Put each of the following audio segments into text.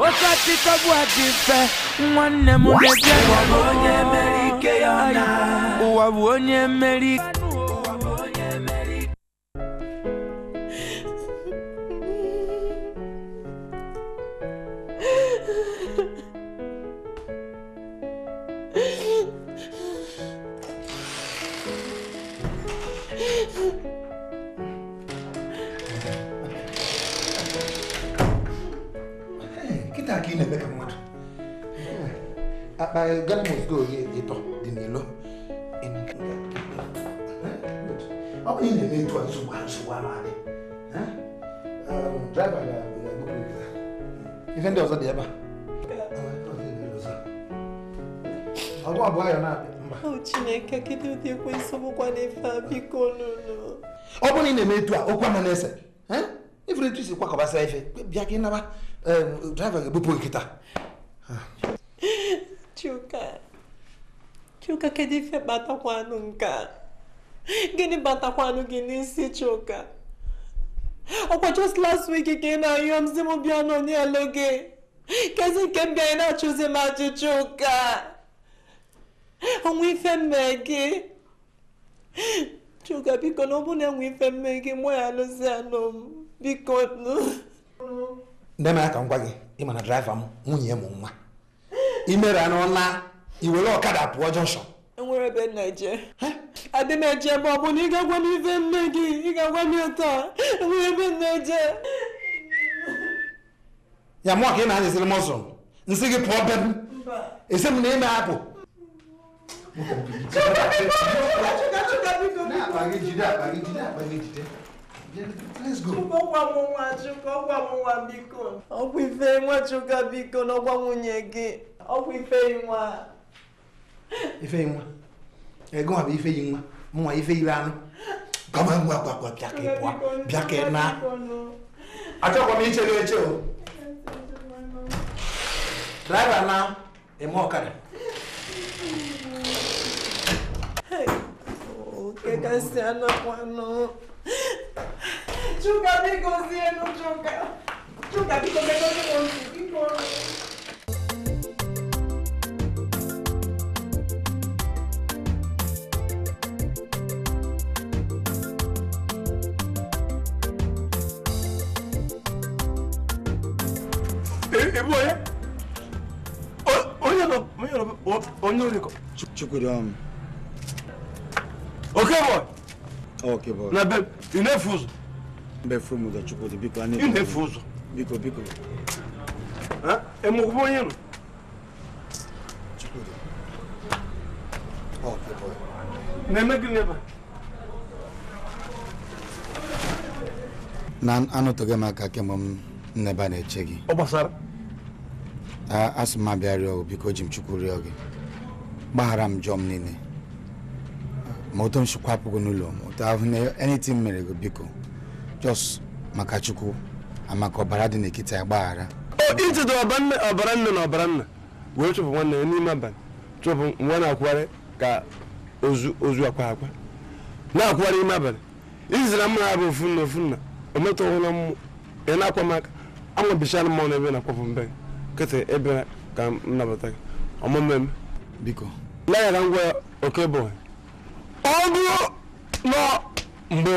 wakati tagwatife mwanne mulege wabonye emerike yona wabonye emerike oyi ịtọ dị n'ilo ọ bụ na-eto ga ife ndị ọzọ dị ebe a ọgwụ abụọ ya na-abịa mba chineke kedu ụdị ekwensị bụkwa n'ife a biko nụnụ ọ bụrụ na ị na-eme etu eh, a okwu anọ na-ese ifuru etu isi ife bịa ka naba draiva ga-ebupụ nkịta ah. Chuka Chuka kedu ife kpatakwanụ nka a gịnị batakwanụ gị n'isi Chuka ọkwa just last week ka na-ayọ m si m bịa gị kezi nke m na-achụzi maji chuka ụka onwe ife gị Chuka biko na ọ bụ na enwe ife mmee gị mụ ya alụzi m biko nne m aka m gwa ịma na draiva m nwunye m nwa imere n'ọla iwere ọkada pụọ jọnshọn enwere ebe na-eje adị na-eje ebe ọ bụ na ị ga-agwa m ife nne gị ị ga-agwa m ụtọ enwere ebe na ya mụọ ka ị na-anyịsịrị m ọsọ nsị gị pụọ be m esi m na ime apụ ọgwụ ife nwachukwu biko n'ọgwa nwunye gị ọ bụ Ifeyinwa. Ifeyinwa ego nwa bụ nwa mụnwa Ifeyinwa anụ gaba ngwa gwagwa bịa ka ịpụa bịa ka ị na achọkwa m ichere n'eche o draiva na eme ọkara oh, kekasị anakwanụ Chuka biko zie nụ Chuka Chuka biko megozi m ntị biko 뭐해? 어, 언니 너, 언니 너, 어, 언니 어디 거? boy. Okay boy. Na ben, une fuse. Be fumu da çukuru biko ani. Une fuse. Biko biko. Ha? E mu kubo yenu. Çukuru. Okay boy. Ne me gine ba? Nan anotoge maka ne bana ne chegi. Obasara. asị m abịa rịọ biko ji m chukwu rịọ gị gbaghara m jọọ m niile ma otu m chukwu n'ụlọ m otu ahụ na anything mere gị biko just maka chukwu amaka ọbara dị n'ekiti ya gbaghara ichedo ọbara nne na ọbara nna wee chụpụ nwanne ya n'ime abalị chụpụ nwa na-akwụgharị ka ozu akwa akwa na-akwụgharị ime abalị izira mma ha bụ ofu nna ofu nna o metụghụla ị na-akwa m aka anwabichala mmanwụ na ebe na-akwapụ mbe gị nkịtị ebere ka m nabata gị ọmụme m biko leghara ngwa oke bụ ọ bụrụ nọ mgbe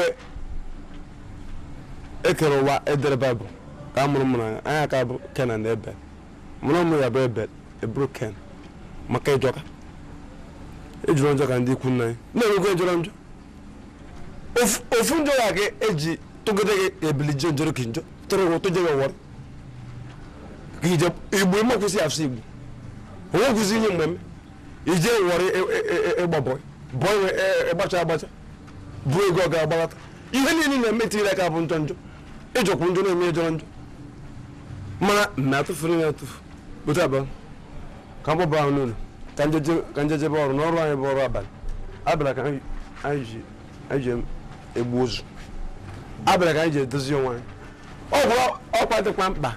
ekere ụwa edere baịbụl ka a mụrụ m n'anya anya ka bụ kenan na ebel mụrụ ụmụ ya bụ ebel eburu ken maka ịjọka ejụrụ njọ ka ndị ikwu nna anyị na-enwego njọrọ e njọ ofu njọ ya ka eji tụgide gị ebili jee njọrọ ka njọ tụrụ ụtụ jebe wọrọ igbo imekwụsị asụ igbo onwekwụsị ihe mmemme ije wọrị ịgba e, e, e, bọị bọị ịgbacha agbacha bụ ego ọ ga-agbalata ihe niile na-eme tinyere aka bụ njọ njọ ịjọkwu njọ na-eme jọrọ njọ mana na ya atụfu otu abalị ka ka njejebe ọrụ n'ọrụ ọrụ abalị abịara ka anyị ji egbu ozu abịara ka anyị ji mkpa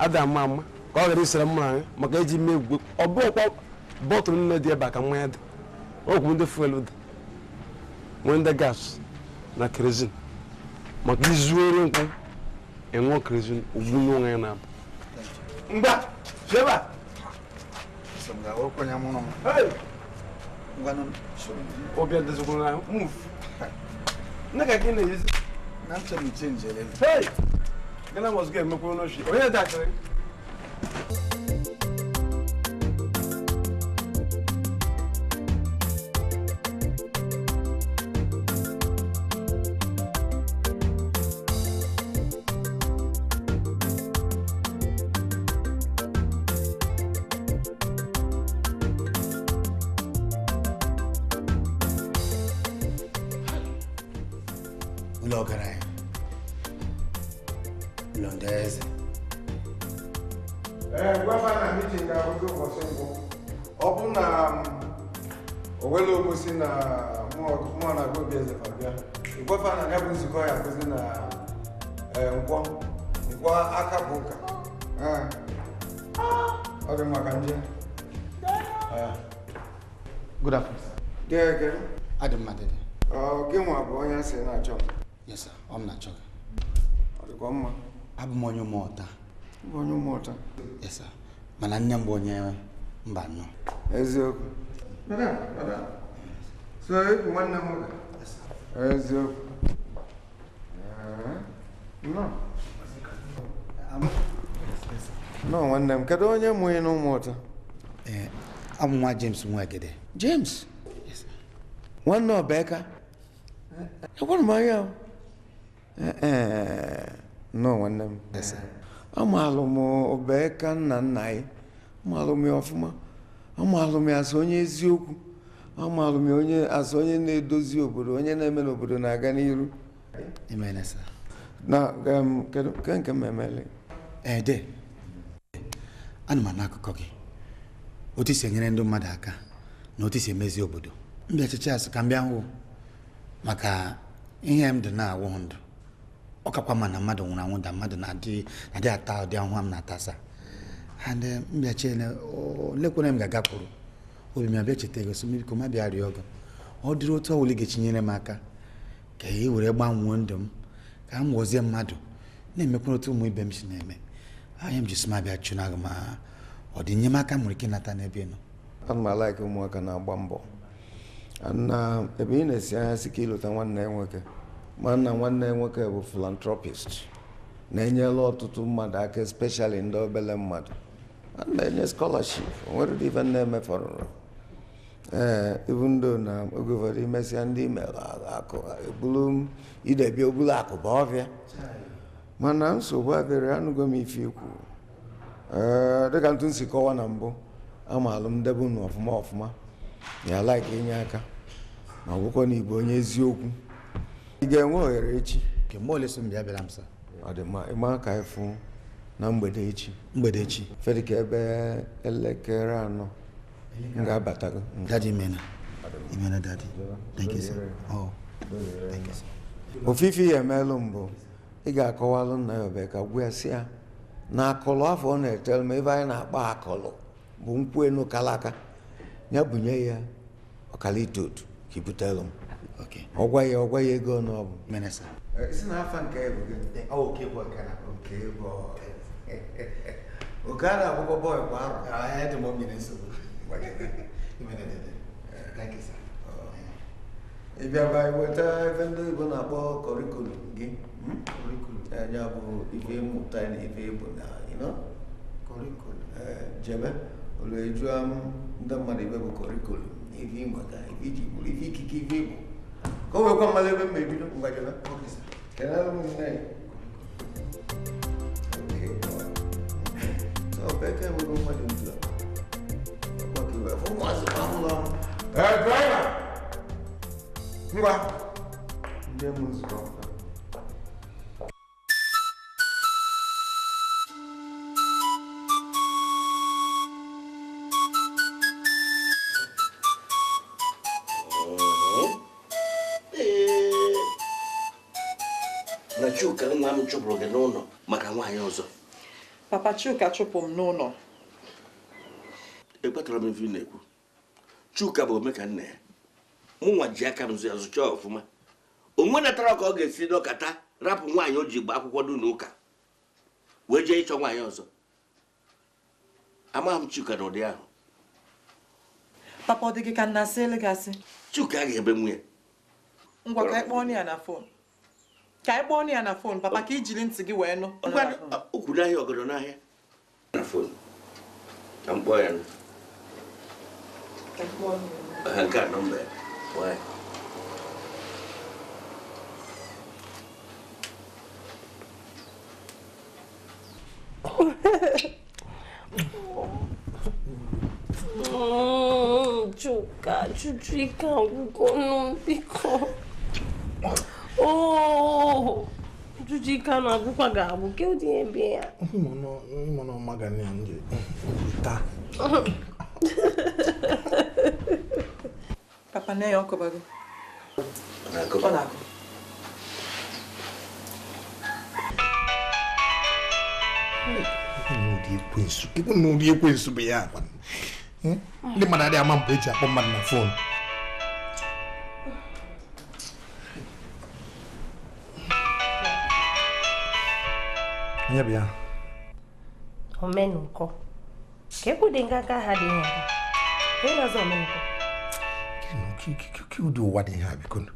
ada ama mma ka ọ ghara isere mma anyị maka eji mee egwugwe ọ bụghịkwa bọtụlụ nne dị ebe a ka mmanya dị ọgwụ ndị fuelu dị nwee ndị gas na kerozin maka izuoro nkwụ enwe kerozin ugbu n'onwe ya na-abụ mgba feba move nne ka gị na na Gana must get meu kuno shi. Oye da kare. na eh, eh, nkwọ nkwọ aka bụ ụka eh. ọ dị maka ndị Good afternoon. Adị m adịdị. Gị nwa bụ onye asị na-achọ m. Yes ọ m na-achọ Ọ dịkwa mma. Abụ m onye ụmụọta. Bụ mana nne m bụ onye mba nọ. Eziokwu. nọ nwanne m kedu onye mụ ịnụ ụmụụta abụ nwa James Nwagede James nwanne ọbeka ekwere m anya nọ nwanne m amalụ m ọbeka nna nna anyị amalụ m ya ọfụma amalụ m ya onye eziokwu amalụ m ya onye na-edozi obodo onye na-eme n'obodo na-aga n'iru Imena Na kedu nke nke m emele? Ede. Eh, n'akụkọ gị. Otu enyere ndị mmadụ aka na otu emezi obodo. Mbịa ka m bịa maka ihe m dị na ndụ. Ọ mmadụ nwụrụ anwụ da mmadụ na-adị ata ụdị m na-atasa. And ga obi ọ ga m ka e were gbanwee ndụ m ka m ghọzie mmadụ na-emekwa otu ụmụ ibe m si na-eme anya m ji sima bịa chụna gị ma ọ dị enyemaka m nwere ike ịnata n'ebe nọ ana ụmụaka na-agba mbọ na ebe ị na-esi anya si ka ịlụta nwanne nwoke mana nwanne nwoke bụ filantropist na-enyela ọtụtụ mmadụ aka especially ndị obele mmadụ na-enye scholarship onwere ife na emefọrụrụ ee eh, ibundo na oge ụfọdụ imesịa ndị akụbulu idebia obulu akụba ọbịa mana nsogbu abịrị anụgo m ife ikwu eh, dịka ntụ nsi kọwa na mbụ ama alụmdebe unu ọfụma ọfụma ya laik inye aka ma ọgwụkwọ na igbo onye eziokwu ị ga-enwe ohere echi ọdịma ka ịfụ na mgbede echi mgbede echi fedịka ebe elekere anọ m ga-abatago ofufe ya emelụ mbụ ị ga-akọwalụ nna ya obe ka gwa ya si ya na akụlụ afọ ọ na-etere m ebe anyị na-akpa akụlụ bụ nkwu enu kalaka ya bunye ya ọkalite otu ka ibutelụ m ọgwa ya ọgwa ya ego ọnụ ọ eh, oke a na-agbụgbọ bọyị kwa arọ ah, ị bịaba iweta ebe ndị Igbo na-akpọ kọrikulum gị ya bụ ife mmụta na ife Igbo na jebe m ndị mmadụ ibe bụ kọrikulum ife ịmụta ife iji ife ikike ife ka o nwekwa mmadụ ebe vamos é, lá, vamos lá. É, pega! Vamos lá. Dê uhum. eh. não música, cara. não Chuka nna m chụpụrụ gị não maka nwaanyị não papa Chuka chụpụ não não ekpatara m ife na-ekwu chuka bụ omeka nna ya mụnwa ji aka m ya zụcha ọfụma onwe natara ka ọ ga-esi n'ọkata rapụ nwaanyị o ji gba akwụkwọ dị n'ụka wee jee ịchọ nwaanyị ọzọ amaghị m chuka na ụdị ahụ papa ọ dị gị ka nna sị elegasị chuka ga-ebe nwunye ngwa ka anyị kpọọ ya na fon ka anyị kpọọ ya na fon papa ka ijiri ntị gị wee nụ okwu n'ahịa ọgọdọ n'ahịa na fon ka m kpọọ ya nụ I got them back. Why? 주가 주주이가고 고놈비고 오 주주이가 나고 가고 게 어디에 비야 뭐노 뭐노 마가네 안지 다 papa nne ya ọ kọbago ọ na-akọ ịbụ na ụdị ekwensu bụ ya akwa ndị mmadụ adịghị ama mgbe eji akpọ mmadụ na fon onye bụ ya omenkọ ka ekwu dị nganga ha dị nha ịnọzi omenkọ kiwdo waɗi haaɓe kono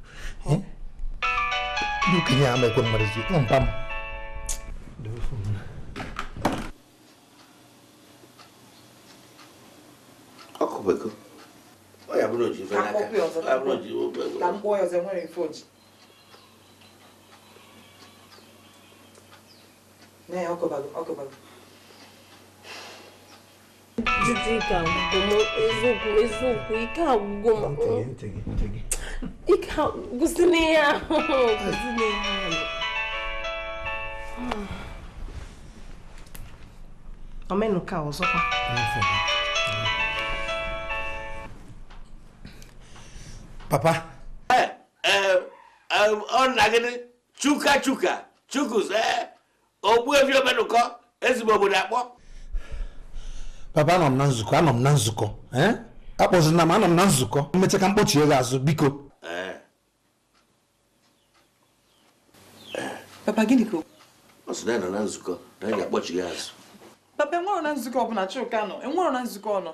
duki ñaama kono mbaɗa si on pam hokko ɓe ko o o yaɓnoji fenayaɓnoji kam ɓoyo se mone foji mais hokko bagum hokko bagum Didi ike m eziokwu ike m ihe ahụ omenụka ọzọkwa papa ọ nna gị chuka chuka eh. ogbu omenụkọ ezigbo obodo akpọ papa anọ m na nzukọ anọ m na nzukọ eh? akpọzina m anọ m na nzukọ mmecha ka mkpọchie gị azụ biko papa gịnị ka ọ sị na na nzukọ na anyị ga-akpọchi azụ papa enwero na nzukọ ọbụla Chuka nọ enwero na nzukọ nọ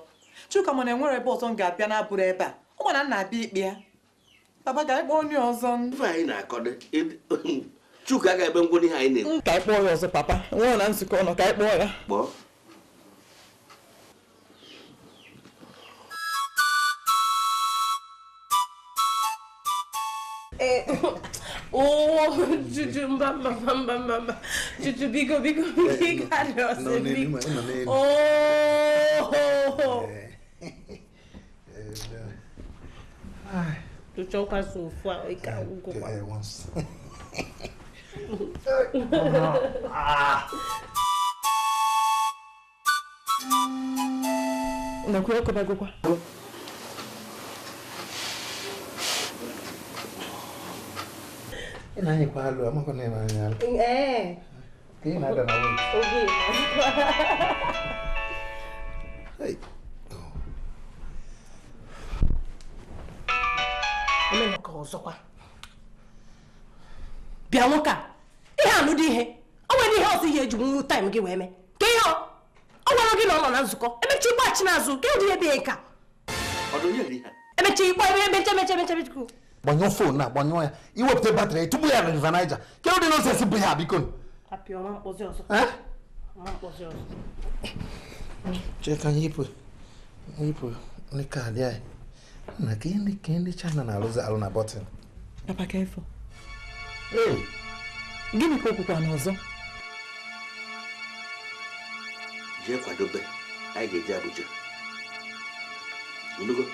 Chuka mana enwere ebe ọzọ m ga-abịa na-abụrụ ebe a ọ mana nna abịa ikpe ya papa ga anyị onye ọzọ ife anyị na-akọdo Chuka ga-ebe ngwụrụ ihe anyị na-ekwu ka anyị kpọọ ya ọzọ papa enwere na nzukọ ọnọ ka anyị ya kpọọ Oh, Juju bigo bigo eh, bigo carosa. Oh. Eh. Tu choca sofá e caiu com Nakuya kwa bagokwa. na anyị kwalụ amakọ na ịmanya alụ ka ị na-ada na oge emere ka ọzọkwa bịa nwoke a ihe alụdị ihe ọ nwere ihe ọzọ ihe eji nwụrụ taịm gị wee mee ka ihe ọ gwara gị na ọ na nzukọ n'azụ ka gbanyụọ fon na agbanyụọ ya iwepụta batrị tupu ya na river Niger kedu ụdị bụ ya biko cheka anyị na ndị China na-alụzi alụ na gịnị ka n'ọzọ jee kwadobe anyị ga-eje Abuja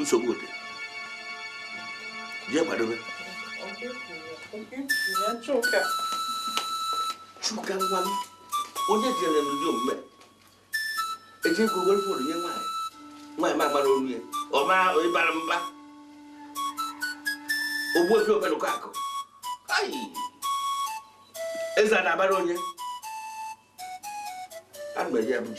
nsogbu dị jee kwadobe chuka ngwa m onye jere m ndị omume eji ego nye nwaanyị nwaanyị ma agbara olu ya ọ onye bara mba ofe obenụkọ akụ eze a na-agbara onye ana m Abuja bụ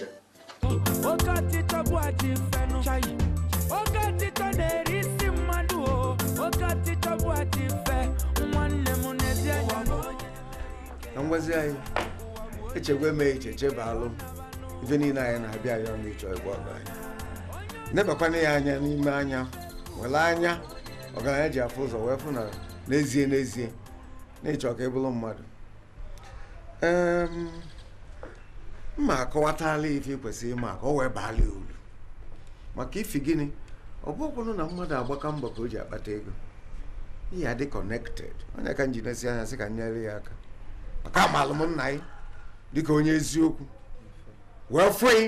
na ngwazi anyị echegwe eme iche alụ ife niile anyị na-abịa ya ọnụ ịchọ igwe ọgụ anyị nebakwana ya anya n'ime anya were anya ọgaranya ji afụ ụzọ wee fụ na n'ezie n'ezie na ịchọ ka ị bụrụ mmadụ ehm, mma akọwatala ife kwesịrị ịma ka ọ wee baala uru maka ifi gịnị ọ bụ na mmadụ agbaka mbọ ka o ji akpata ego ihe adị kọnekted onye ka m ji nesi anya sị ka m nyere ya aka maka amalụ m nna gị dịka onye eziokwu wee fụị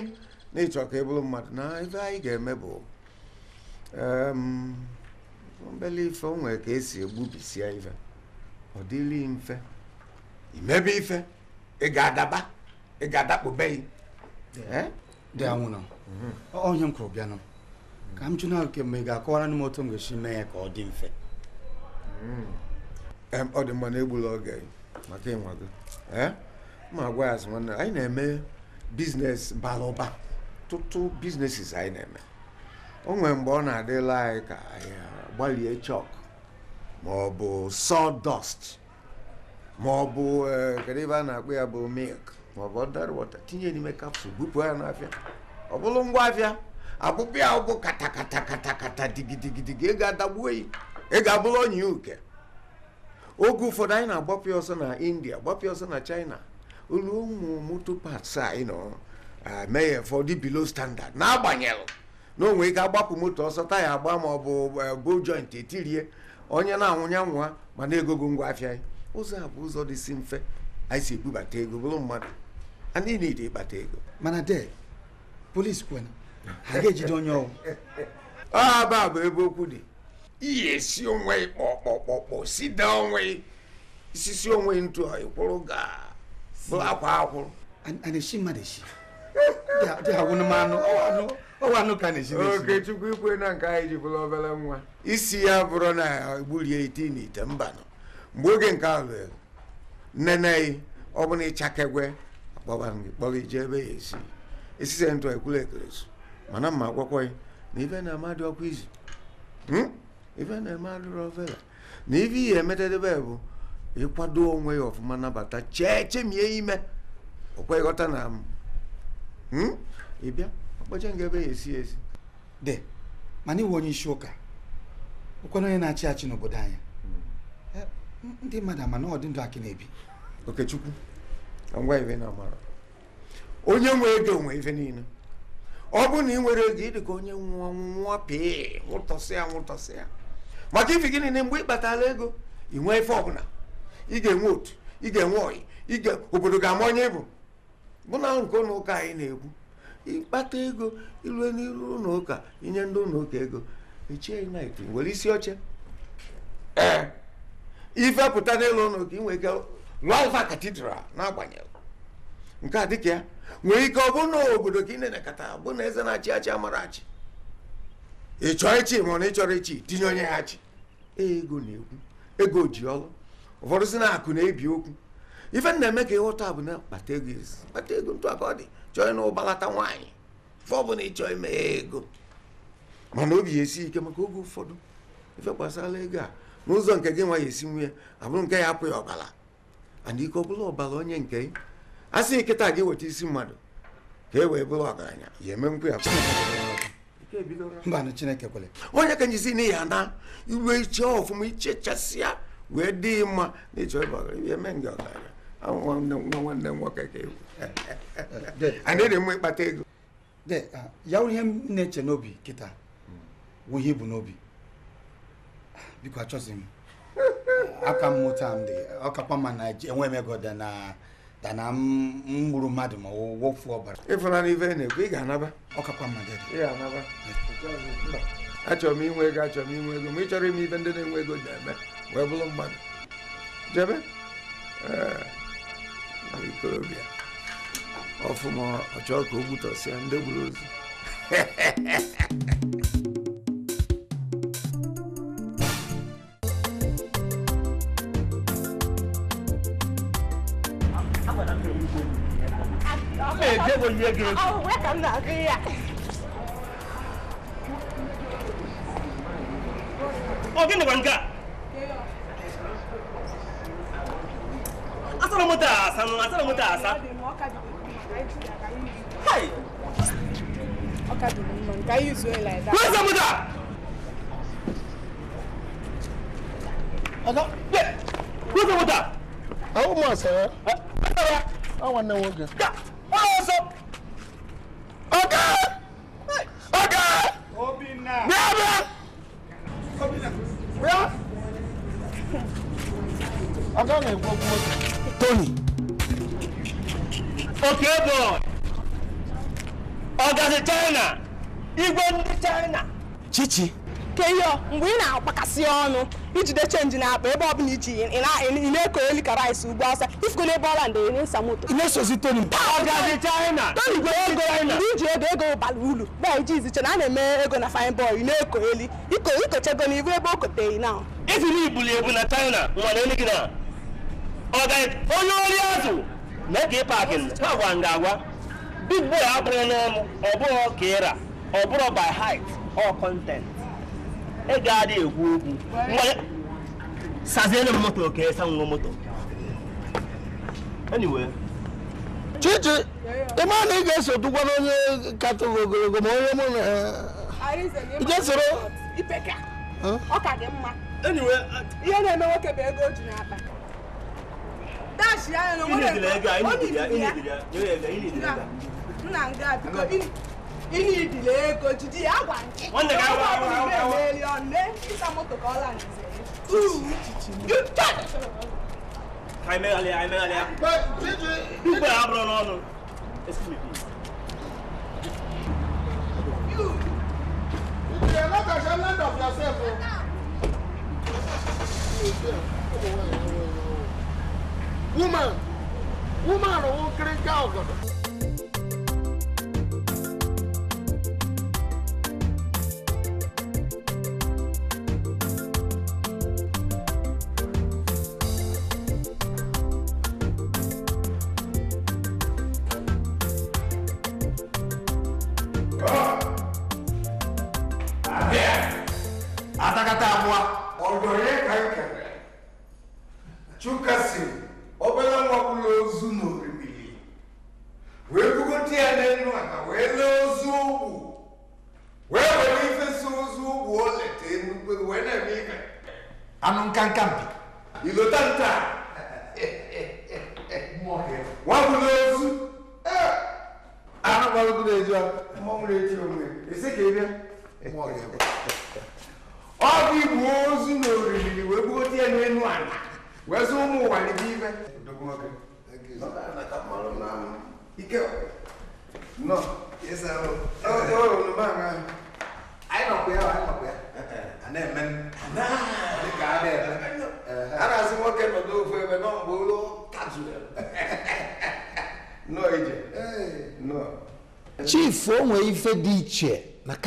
na ịchọ ka ị e mmadụ na ife anyị ga-eme bụ mbele ife o nwere ka esi egbubisie ife ọ dịrị mfe imebe ife ị ga-adaba ị ga-adakpụbeghị dị anwụrụ onye m kwụrụ bịanụ ka m jụna kemgbe ị ga-akọwara m otu m ga-esi mee ya ka ọ dị mfe hmm. ọ dị mma na egbula oge maka ịnwa gị ma agwa ya azụ nwanne anyị na-eme biznes bara ụba tụtụ biznesis anyị na-eme o nwere mgbe ọ na-adịla anyị ka anyị gbalie chọk ma ọ bụ sawdust ma ọ bụ e, kedu ebe a na-akpụ ya bụ milk ma ọ bụ ọdara wọta tinye n'ime kapsụl bupụ ya n'afịa ọ bụrụ ngwa afịa abụbụ ya bụ katakata katakata digidigidigi ego adagbuo yi ego abụrụ onye uke oge ụfọdụ anyị na-agbapụ ọsọ na india gbapụ ọsọ na china olu ụmụ moto parts anyị nọ mee ya fọdụ below standard na-agbanyeghị na onwe ike agbapụ moto ọsọ taya agba ma ọ bụ bo e, joint etirie onye na-anwụnya nwa ma na-egogo ngwa afịa anyị ụzọ a bụ ụzọ dị mfe anyị si ebubata ego bụrụ mmadụ anyị niile ịkpata ego mana de polis kwena ha ga-ejide onye ọwụ ọ bụ ebe okwu dị iyi esi onwe kpọkpọkpọkpọ sida onwe isisi onwe ntụ ịkwụrụ ga bụ akwa akwụrụ ana-eshi mmadụ eshi dị awụnụ m anụ ọwa anụ ka na na-esi. oke chukwu ikwe na nke anyị ji bụrụ obere nwa isi ya bụrụ na egburie ite na ite nọ mgbe oge nke ahụ nnene ọ bụ na ịchakegwe akpọba gị kpọrọ ije ebe ya esi esise ntụ ekwuru ekeresu mana mma agwakwaghị na ibe na amadị ọkwa izu hmm? ife na-eme alụrụ ovela na ife ihe emetedebe bụ ịkwado onwe ya ọfụma nabata chee chemie ime ọkwa ịghọta na m ịbịa ọkpọcha nga ebe ya esi esi de mana iwe onye isi ụka ụkwara onye na-achị eh? achị hmm. eh, n'obodo anyị ndị mmadụ ama na ndụ akị na-ebi okechukwu ngwa ife na amara onye nwe ego onwe ife niile ọ bụrụ na ị nwere ego ịdị ka onye nwa nwa pịị nwụtọsịa nwụtọsịa maka ifi gịnị na mgbe ị kpatala ego ị nwee ife ọbụla ị ga-enwe otu ị ga-enwe ọyị ịga obodo ga-ama onye ịbụ bụ na nke ụlọụka ụka anyị na egbu ịkpata ego ịlụ n'iru ụka inye ndị ụlọụka ụka ego echie nit nwere isi oche ee ife n'ụlọ n'elu ụlọ ụka inwe ike lụọ alfa katidral n'agbanyeghị nke a dịka ya nwere ike ọ bụ na obodo ka ị na-elekọta bụ na eze na-achị achị amara achị ị chọọ ichi ma na ị chọrọ ichi tinye onye ya chi e, ego na-ekwu ego ji ọlụ ụfọdụ si na akụ na-ebi okwu ife na-eme ka ịghọta bụ na kpata ego kpata ego ntụ aka ọ dị chọọ na ụbalata nwaanyị ife ọbụla ị chọọ ime ya ego mana obi ya esi ike maka oge ụfọdụ ife gbasara ego a n'ụzọ nke gị nwa ya esi nwunye abụrụ nke ya apụ ya ọbara ana ike ọbụla ọbara onye nke a sị nkịta gị weta isi mmadụ ka e wee bụrụ ọgaranya ya eme nkwụ ya mba na chineke kwere onye ka njisi n'ihi ya na iwe iche ọfụma ichechasịa wee dị mma na ịchọ eme ndị ọgaranya nwa nwanne nwoke ka ewu dị mma ịkpata ego ya ihe eche n'obi kịta wụ ihe ibu n'obi biko achọzi m aka mmụta ma na dana m gburu mmadụ ma wofu ọbara ịfụna n'ife na-ekwu ị ga-anaba ọkakwa mmadụ ị ga-anaba achọrọ m inwe ego achọrọ m inwe ego ma ị chọrọ ime ife ndị na-enwe ego na wee bụrụ mmadụ jebe ikorobịa ọfụma ọchọ ka o gbutọsịa ndị gburu ozu Me debo yege. Oh, where can I go? Ogene oh, wanga. Asala mota asa, asala mota asa. Hey. Okay, do you know? Can you use it like that? Where's the mota? Aga, where's the mota? How much, sir? àwọn náà wọ́n jẹ. wọ́n lọ sọ ọ̀gá ọ̀gá bíá bíá bíá ọ̀gá náà gbọ́ gbọ́ Tony. okay boy ọ̀gá si China igwe ndị China. chichi. keyo mgbe ị na-akpakasị ọnụ ijide chenji na akpa ebe ọbụla iji ị na-eko elu ka rice ugbo asa ifiko n'ebe ọla ndị ị na-esa moto ị na-esozi toni tonigwe ego ndị iji ego ego bara uru bịa iji iziche na a na-eme ego na fine boy ị na-eko elu ikochego na ibu ebe o koteghị na ifili ibuli ebu na china nwere onye gị na onye ori azụ mee ka ị paakị gwa nga agwa big boy abụrụ na ọ bụrụ ka ịra ọ bụrụ by height or content ị ga-adị ekwu okwu sazienụ m moto ka esa nwa moto anyway chichi ịma na ị ga-eso dụkwa n'onye katọrọ ogologo ma onye uh, mụ na ije soro ọ ka dị mma ihe na-eme nwoke bụ ego o ji n'akpa dashi anya na nwoke ọ na nga biko ihe idile ego jide ya gwa nke ọ bụrụ ire emeli ọnụ ịsa moto ka ọ la nze ka anyị meghalịa anyị meghalịa dugbe ha bụrụ n'ọnụ Woman, woman, won't drink alcohol.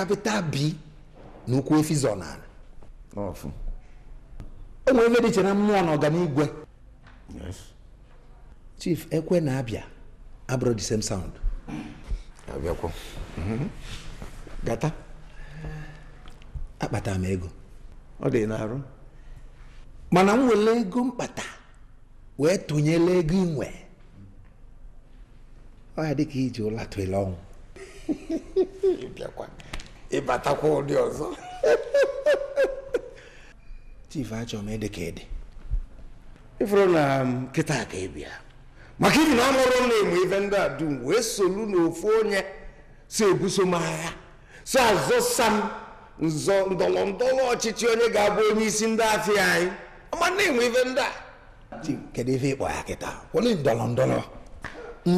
capital b n'ukwu efi zonara o nwere ebe dị na mmụọ na ọganigwe chief ekwe na abịa abụrụ the same sound mhm. gata akpata m ego ọ dị n'arụ mana m nwere ego mkpata wee tụnyela ego inwe ọ ya dịka iji ụlọ tụele ọnwụ ịbatakwa ụdị ọzọ chief achọ m ede ka ede ifuru na um, kịta ka ịbịa maka ibi na amụrụ m na-enwe ife ndị a dum wee solu n'ofu onye si ebuso m agha si azọsa m nzọ ndọrọ ndọrọ ọchịchị onye ga-abụ onye isi ndị afịa anyị ọma na-enwe ife ndị a kedu ife ịkpọ ya kịta kwụlụ ndọrọ ndọrọ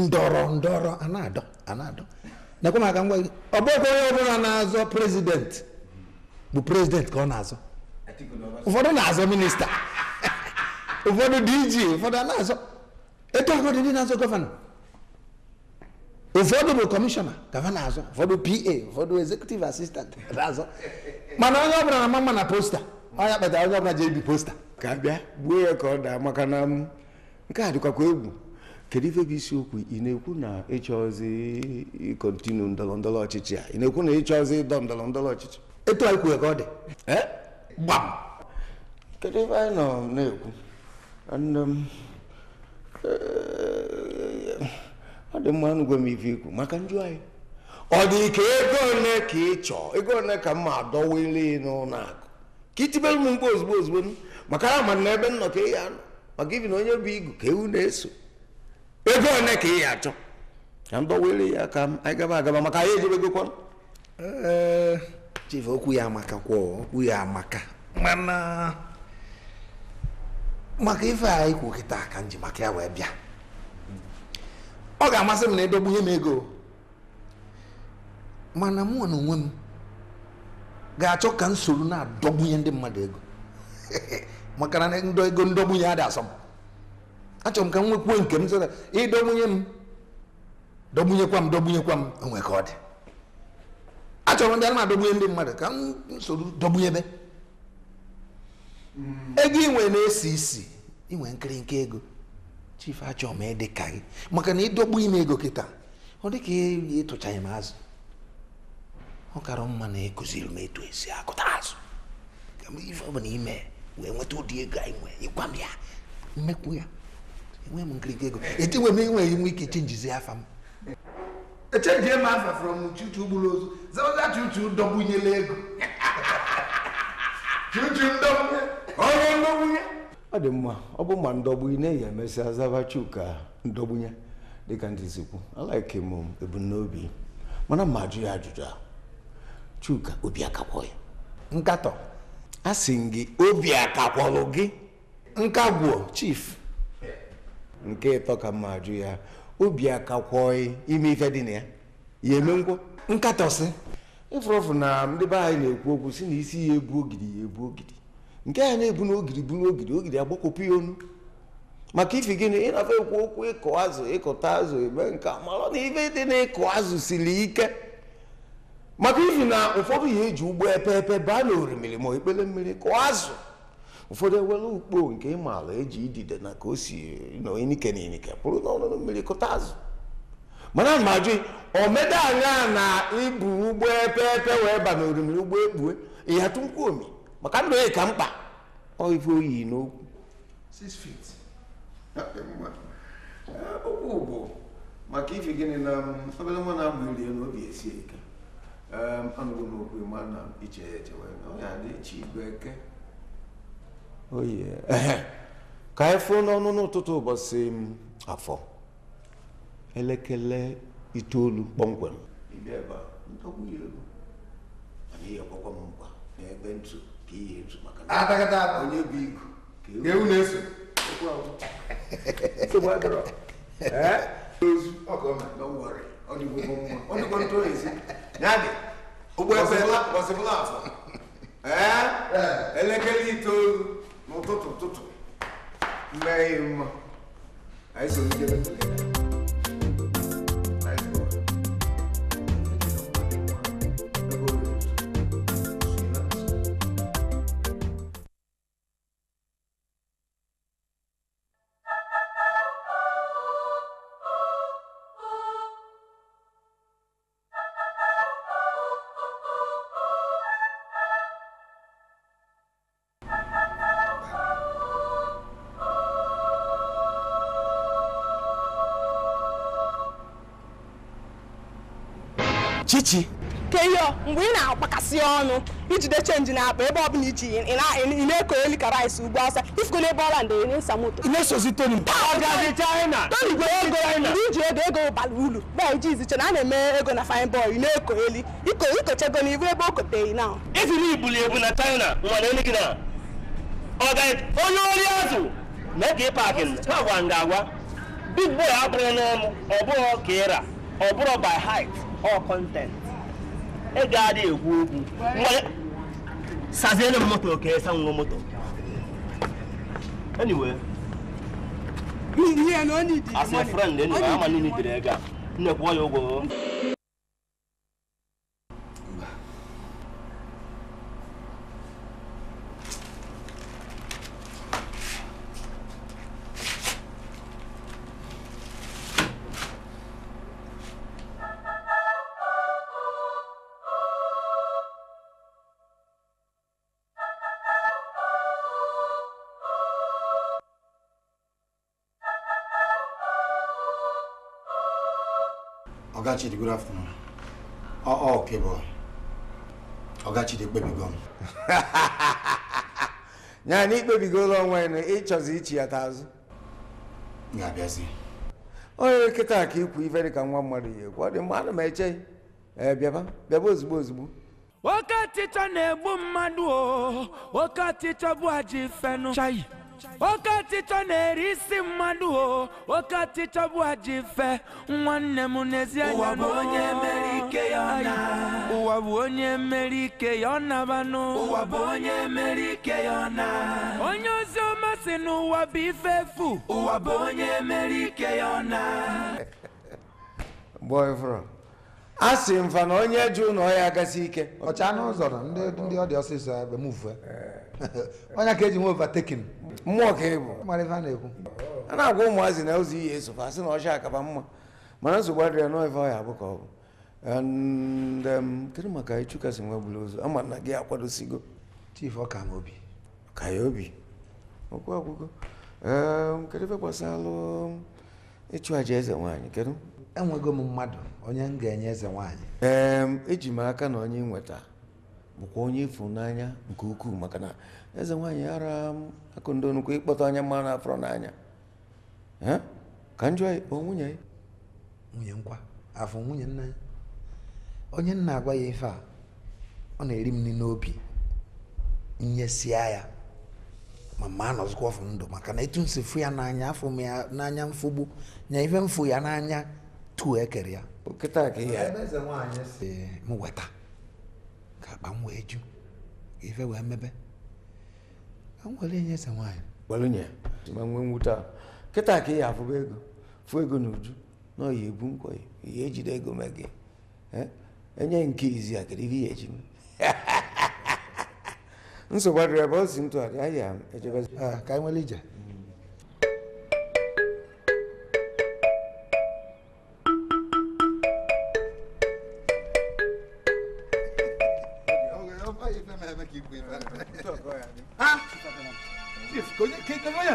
ndọrọ ndọrọ a na-adọ a na-adọ nekwa maka ngwa gị ọ bụghịkwa onye ọbụla na-azọ prezidenti bụ prezidenti ka ọ na-azọ ụfọdụ na-azọ minista ụfọdụ dg ụfọdụ na-azọ etu ụfọdụ ndị na-azọ gọvanọ ụfọdụ bụ kọmishọna gọvanọ azọ ụfọdụ pa ụfọdụ ezekutiv asistantị na-azọ mana onye ọbụla na mama na posta onye kpatara onye ọbụla ji ebi posta ka bịa gbuo ya ka ọ daa maka na nke a dịkwakwa egwu kedu ife bụ isiokwu ị na-ekwu na ịchọzi ịkọntinu ndọrọ ndọrọ ọchịchị a ị na-ekwu na ịchọzi ịdọ ndọrọ ndọrọ ọchịchị etu anyị kwuo ka ọ dị gbam kedu ife anyị nọ na-ekwu um, eh, ọ dị mma anụgwe m ife ikwu maka njụ anyị ọ dị ka ego ole ka ị chọọ ego ole ka mma ma adọwele n'ụlọ akụ ka itibere m mgbe ozugbo ozugbo m maka ya ma na ebe m ka ị ya nọ maka ibi na onye bụ igu ka ewu na-eso ego one ka ị ya achọ ka m dọwere ya ka anyị gaba agaba maka anyị ejebegokwa chief okwu ya amaka kwọ okwu ya amaka mana maka ife anyị kwu kịta ka m ji maka ya wee bịa ọ ga-amasị m na edogbu m ego mana m na onwe m ga-achọ ka m na-adọgbunye ndị mmadụ ego maka na ego ndọgbunye adị asọmpi. achọrọ m ka m nwekwuo nke m sịra ịdọgbunye m dọgbunyekwa m dọgbunyekwa m onwe ka ọ dị achọrọ ndị na-adọgbunye ndị mmadụ ka m soro dọgbunyebe hmm. ego inwe na-esi isi inwe nkịrịnka ego chief achọ m ịdị ka gị maka na ịdọgbu ime ego kịta ọ dị ka ịtụchaghị m azụ ọ kara mma na ekụziri m etu esi akụta azụ ka m ife ọ bụla ime wee nweta ụdị ego anyị nwee ịgwa m ya mmekwu ya enweghị m nkirikiri ego etinwe m enweghị m ike chenjizi afa m echenjie m afa from chuchu gburu ozu zaoza chuchu dọgbunyela ego chuchu ndọgbunye ọrụ ndọgbunye ọ dị mma ọ bụ ma ndọgbunye na-eyi emesịa zaba ndọgbunye dịka ndị zikwu alaike m um, ebumnobi mana ma ajụ ya ajụjụ a chuka obi akakwọ ya nkatọ a sị gị obi akakwọrọ gị Nkagwo chief nke ịtọ ka mma jụ ya obi akakwọị ime ife dị na ya ya eme ngwo nkatọsị ịfụrụfụ na ndị be anyị na-ekwu okwu si na isi ya ebu ogidi ya ebu ogidi nke a na-ebu na ogidi ogiri ogidi ogidi agbakọpụ ya onu maka ife gịnị ịnafe ekwu okwu ịkụ azụ ịkụta azụ eme nke mara na ife dị na ịkụ azụ siri ike maka ife na ụfọdụ ya eji ụgbọ epe epe baa na orimiri ma ekpele mmiri kụọ azụ ụfọdụ ewere ukpo nke ịmaala eji idide na ka o si n'inike na inike pụrụ n'ọnụnụ mmiri kụta azụ mana ma ajụ anya na ibu ụgbọ epe epe wee ba na orimiri ụgbọ ekpue maka ndụ ya mkpa ife oyi n'okwu bụ maka agba um, iri um, n'okwu ehe ka anyị n'ọnụ n'ụtụtụ ụbọchị afọ elekere itoolu kpọmkwem ụgbọ ebe ọsịbụla afọ elekere itoolu n'ụtụtụ ụtụtụ mgbe anyị mma anyị so Chichi keyo mgbe ị na-akpakasị ọnụ ijide chenji na akpa ebe ọbụla iji na-eko eli ka rice ugbo ọsa ifukona ebe ọla ndị na samoto ị na-esozi toni toni gwere ego mgbe iji ego ego bara uru bịa iji na a na-eme ego na fine boy ị na-eko elu ikochego na ibu ebe o koteghị na ifiri ibuli ebu na china mana elu gị na onye ori azụ mee ka ị paakị agwa nga agwa big boy abụrụla m ọ bụrụ ọ bụrụ by height All content ị ga-adị ekwu okwu saziere m moto ka esa nwa moto anyway as a friend anyway ama na ị nitere ego a nnekwu ọya ụgwọ Ọ Ọgachide good afternoon. Oh, ọ oh, boy. Ọgachide kpebigo m. ya na ikpebigola onwe ya na ịchọzi ichi ya tazụ. ga-abịazi. onye nkịta ka ikwu ife dịka nwa mmadụ ihe, ekwu ọ dị mmadụ ma eche ee ozugbo ozugbo oke ọchịchọ na-egbu mmadụ o oke ọchịchọ bụ ajọ oke ọchịchọ na-eri isi mmadụ o oke ọchịchọ bụ ajọ nwanne m n'ezi anya bụ onye mmeri ike ya ọ onye ozi ọma si n'ụwa bụ ife efu ụwa bụ onye ike ya ọ a sị mfa na onye jụ na ọya agasi ike ọcha n'ụzọ na ndị ọ dị ọsịsọ ebe m vue onye ka eji nwe overtaking mmụọ ka ịbụ na-ekwu a na-agwa ụmụazị na ozi iyi esofa asị na ọcha akaba mma mana nsogbu adịrị na ife ọya abụ ka ọ um, kedu maka ịchụkasị nwe gburu ozu ama na gị akwadosigo chief ọka m obi ka ya obi okwu ọgwụgo um, kedu ife gbasara ịchụ aja eze nwaanyị kedu enwego m mmadụ onye m ga-enye eze nwaanyị ee eji m aka na onye nweta bụkwa onye ịfụnanya nke ukwuu maka na eze nwaanyị ara m akụndo nnukwu ịkpọta anya mma na afọ n'anya ka njọ ya ikpọ nwunye nwunye nkwa afọ nwunye nna ya onye nna agwa ya ife a ọ na-eri m n'obi nyesia ya ma ma anọzikwa ọfụ ndụ maka na etu nsi fụ ya n'anya afụ m ya n'anya mfụgbu nya ife mfụ ya n'anya tu ekere ya kịta ka ihe m weta ka akpa m wee ju ife wee mebe nwere nye eze nwaanyị were nye ma nwee nwute a kịta ka ihe afụba ego fụ ego na uju na ọya ebu nkwọ ya ejide ego mee gị enye nke izi a kedu ihe eji nsogbu adịrị ebe ọ si ntụgharị ahịa ejebe ah, ka anyị nwere ije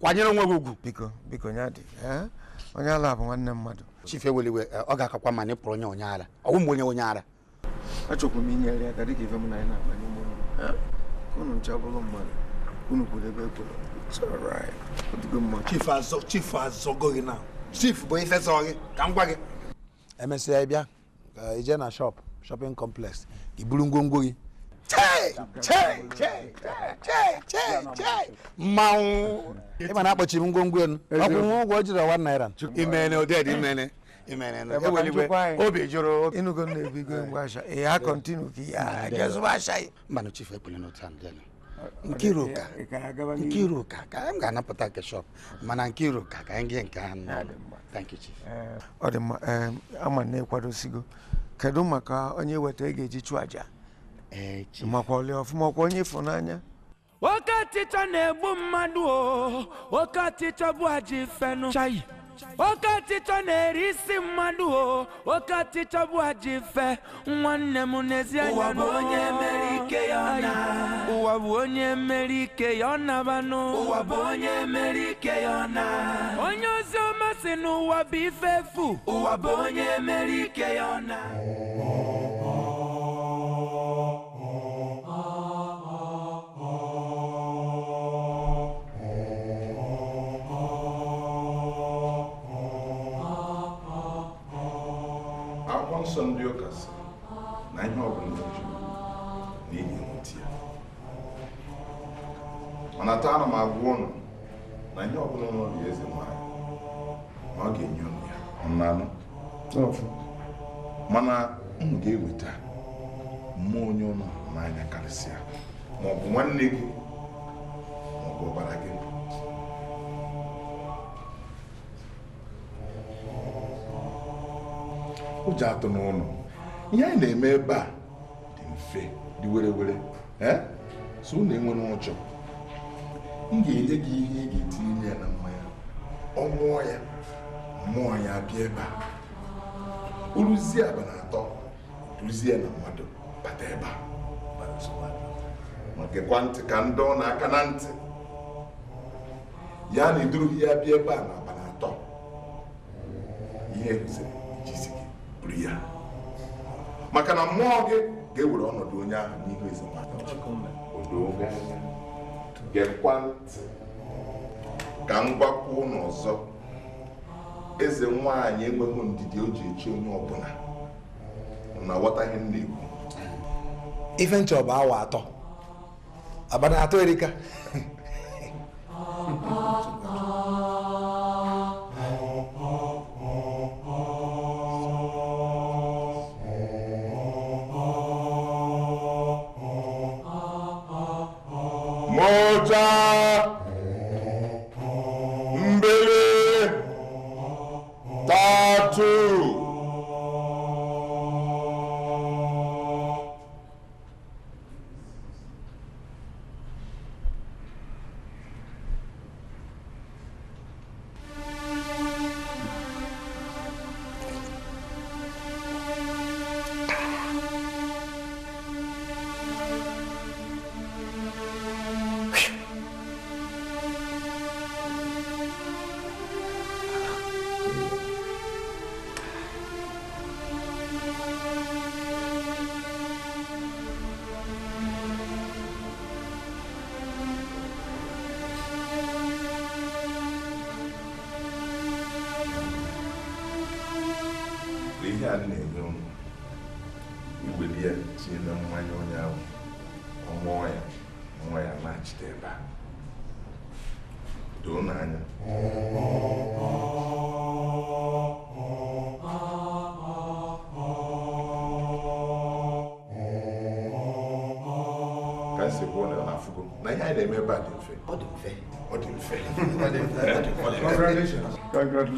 kwanyere onwe gị ugwu biko biko onye eh? ala bụ nwanne mmadụ chief eweliwe eh, ọ ga-akakwa ma nịpụrụ onye onye ara ọwụ m onye onye ara achọkwara m inyere ya ka dịka ife m na anyị na-akpa n'ime ụlọ eh? unu ncha bụrụ mmadụ unu kwuru ebe ekwuru chief azọ chief azọgo gị na chief bụ ife zọ gị ka m gwa gị emesịa ị bịa ije na shop shopping complex gị buru ngwongwo gị mmanwụ ịma na akpọchiri ngwongwo elu ọkwụ ụgwọ jiri ọwa naira imene imene obi jụrụ na ebigo m ọ dị mma ama na-ekwadosigo kedu maka onye weta ị ga-eji chụọ aja makwali ọfụma kwa onye ịfụnanya nwoke ọchịcha na-egbu mmadụ o nwoke ọchịcha bụ ajọ ifenu chayi oke ọchịchọ na-eri isi o oke ọchịchọ bụ ajọ ife nwanne m n'ezi anya na onye mere ike ya na ụwa bụ onye mere ike ya ọ nabanụ ụwa bụ onye mere yona ya na onye ozi ọma si n'ụwa bụ ife efu Akwụkwọ nsọ ndị ụka sị na ihe ọbụla oji n'ihi nwụti ya mana taa ma m agwa ụnụ na ihe ọbụla nọ na eze nwanyị ma ọ ga-enye ụnụ ya mmanụ mana ụnụ ga-eweta mmụọ onye ụnụ n'anya karịsịa maọbụ nwanne gị maọbụ ọbara gị ụjọ atụ n'ụlọ ihe anyị na-eme ebe a dị mfe dị were were so unu enwere ụjọ m ga-enye gị ihe ị ga-etinye ya na mmanya ọ mụọ ya mụọ ya bịa ebe a uruzie aba na atọ duzie na mmadụ bata ebe a ma gekwa ntị ka ndị ọ na-aka na ntị ya na iduru ya bịa ebe a na aba na atọ ihe rụziri e iji buru ya maka na mmụọ gị ga-ewere ọnọdụ onye ahụ n'ihu ezemaka ka m gwakwa ụnụ ọzọ eze nwaanyị enweghị ndidi o ji echi onye ọbụla na aghọtaghị m na-ekwu ife nchọ bụ awa atọ abana atọ erika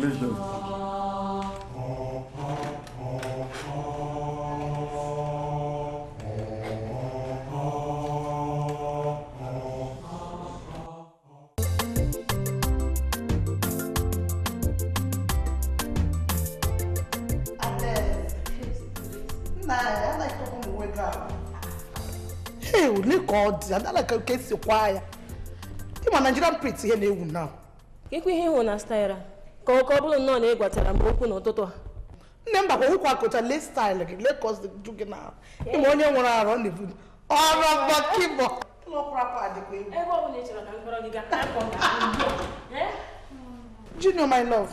Perdão. dị adalaka ka esi kwaa ya ịma nigerian print ihe na-ewu na kekwa ihe ịhụ na style ka ọ bụrụ nnọọ na ị gwatara m okwu n'ụtụtụ a nne m bakwa ụkwa akụcha lestaịlụ gị lekọs ju gị n'ahụ ụmụ onye nwere arụ ọ na-ebu ọrụ mgbakịbọ junior my love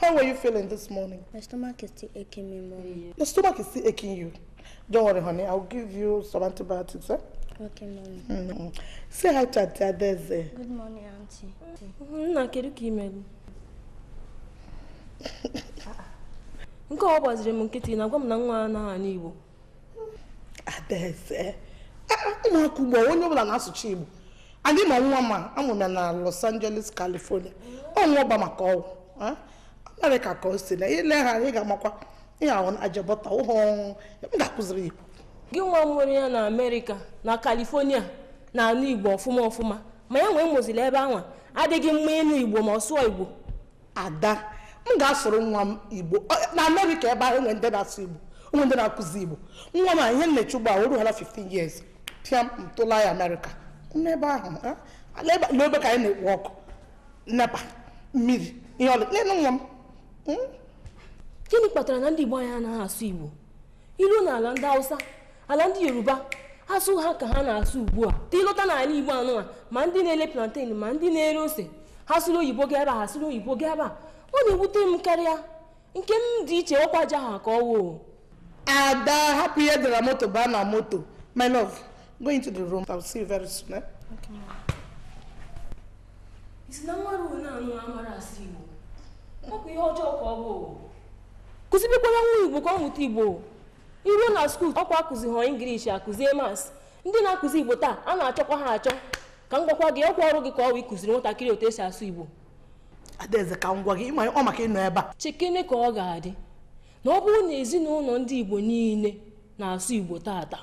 how were you feeling this morning my stomach is still aching me mommy the stomach is still aching you don't worry honey i'll give you some antibiotics eh? Okay, mommy. Mm -hmm. Say hi to Auntie Adeze. Good morning, Auntie. Nna, kedu ka ị mere? nke ọ gbaziri m nkịtị na-agwa m na nwa anaghị anụ Igbo adaeze ah, ah, ụmụaka ugbo onye ọbụla na-asụcha Igbo adị ma nwa ma amụrụ ya na Los Angeles California ọnwa ọba maka ọgwụ ah, Amerịka ka o si na ile ha ị ga-amakwa na-ajụ ajabọta ụhọ m ga-akụziri Igbo gị nwa m nwere ya na Amerịka na California na anụ Igbo ọfụma ọfụma ma ya nwee mụziri ebe anwa adịghị mma ịnụ Igbo ma ọ sụọ Igbo ada m ga-asụrụ nwa m igbo na amerịka ebe ahụ enwe ndị na-asụ igbo onwe ndị na-akụzi igbo nwa m ihe nnechi ugbu a o ruhala 15 years pịa m ya amerịka n'ebe ahụ n'ebe ka anyị na-ekpo ọkụ nepa mmiri ihe ọlụ nne nwa m hmm? gịnị kpatara na ndị igbo anyị anaghị asụ igbo ilu na ala ndị hausa ala ndị yoruba asụ ha ka ha na-asụ ugbu a dị n'ala igbo anụnwa ma ndị na-ele plantain ma ndị na-ere ose ha sụrụ oyibo gị ebe a ha sụrụ oyibo gị ebe ọ na-ewute m karịa nke m dị iche ọkwa ji ahụ ka ọ ada hapụ ihe dara moto baa na moto my love going to the room i'll see you very soon eh? okay. isi na mmadụ na-anụ amara asị igbo ọ bụ ihe ọjọọ ka ọ bụ kụzibekwara nwa igbo ka ọ mụta igbo iruo na skuul ọkwa akụzi họọ ingilishi akụzie mas ndị na-akụzi igbo taa a na-achọkwa ha achọ ka m gwakwa gị ọkwa ọrụ gị ka ọ bụ ịkụziri nwatakịrị otu esi asụ igbo adaeze ka m gwa gị ịma ọ maka ịnọ ebe a chekene ka ọ ga-adị na ọ bụrụ na ezinụlọ ndị igbo niile na-asụ igbo tata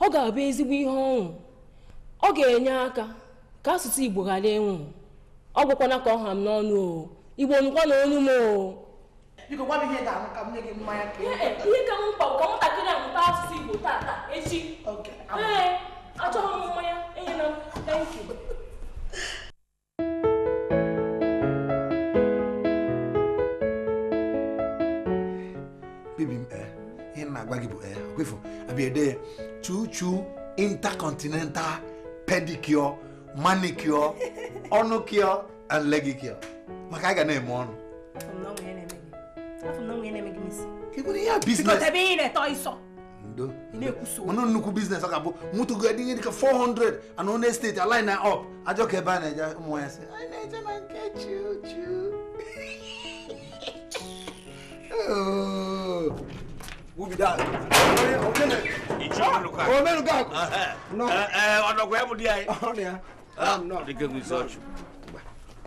ọ ga-abụ ezigbo ihe ọṅụ ọ ga-enye aka ka asụsụ igbo ghara ịnwụ ọ gwakwana ka ọ ha m n'ọnụ o igbo nụkwa na ọnụ m o biko gwa m ihe ga-ahụ ka m nye gị mmanya ka ihe ka m mkpa ka nwatakịrị a mụta asụsụ igbo tata echi ee achọghị m mmanya enye na agbagibo ẹ eh, ọkọifọ àbí ẹdẹ yẹ chuchu intercontinental pedicure manicure ọnụ cure and leg cure maka a ga na-eme ọnụ. ịbụrụ ya biznes. mụnụ nnukwu biznes ọ ga-abụ mụtụgo adịghị dịka 400 and one state align na up ajọ ka ebe a na-eje ụmụ ya sị anyị na-eje na nke chuchu. Oh. wubidal omelugaku onokwemudiyai ndikemuisocho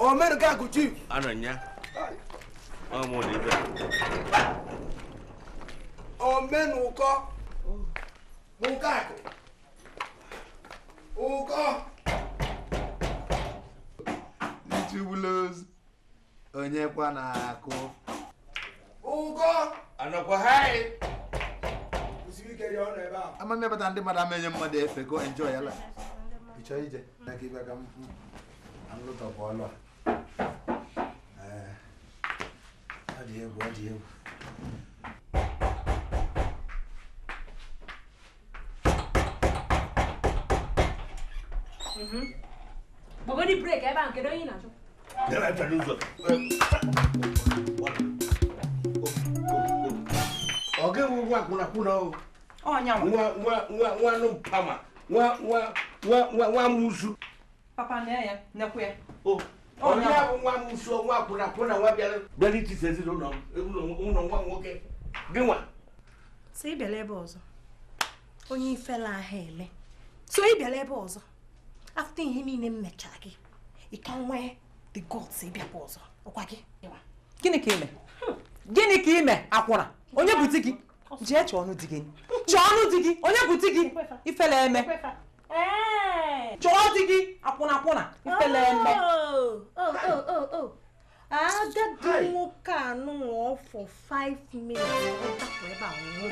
omelugaku chief anonya omunibe omenuko mugaku uko lichibulozi onye kwa na-akụ ụkọ anọkwa haị ama mmepụta ndị mmadụ ama enye mmadụ efe go enjoy ya chọọ ije ka ibe ka ọlụ a ọ dị egwu ọ dị egwu mhm. nwanụ mpama nwa papa na ya onye bụ nwa nwa nwa nwa nwoke nwa ebe ọzọ onye ifela ahụ ele so ịbịala ebe ọzọ afta ihe niile m mechaa gị ị ka nwee the gods ịbịakwa ọzọ ọkwa gị gịnị ka ime hmm. gịnị ka ime akwụna onye bụ gị jee chọọ ọnụ di gị chọọ ọnụ di gị onye bụ di gị ifele eme chọọ di gị akwụna akwụna ifele eme agadi nwoke a nụọ for five minutes ka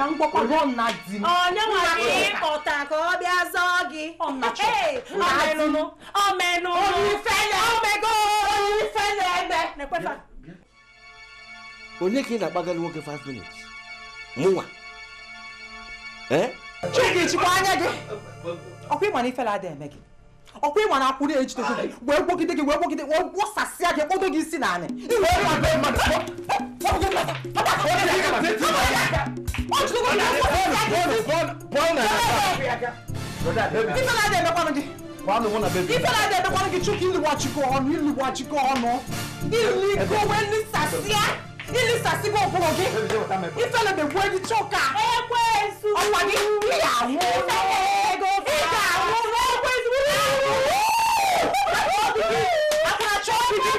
m gbakwa gụọ nna di m onye nwere ịkpọta ka ọ bịa zọọ gị omenụ omenụ onye ifele omego onye ifele eme onye ka ị na-akpagara nwoke 5 minutes mụnwa eh? chike chikwa anya gị ọkwa ịma na ifela adịghị eme gị ọkwa ịma na akwụ na-ejide gị wee gwogide gị wee gwogide gị kpọdo gị isi n'ala ifela ada emekwanụ gị chukwu ọnụ ọnụ wee ili sasibo ogboroge ifele be gwe di choka egwe esu ọpa ni ìyàwó ìyàwó egwe esu akara chọpidi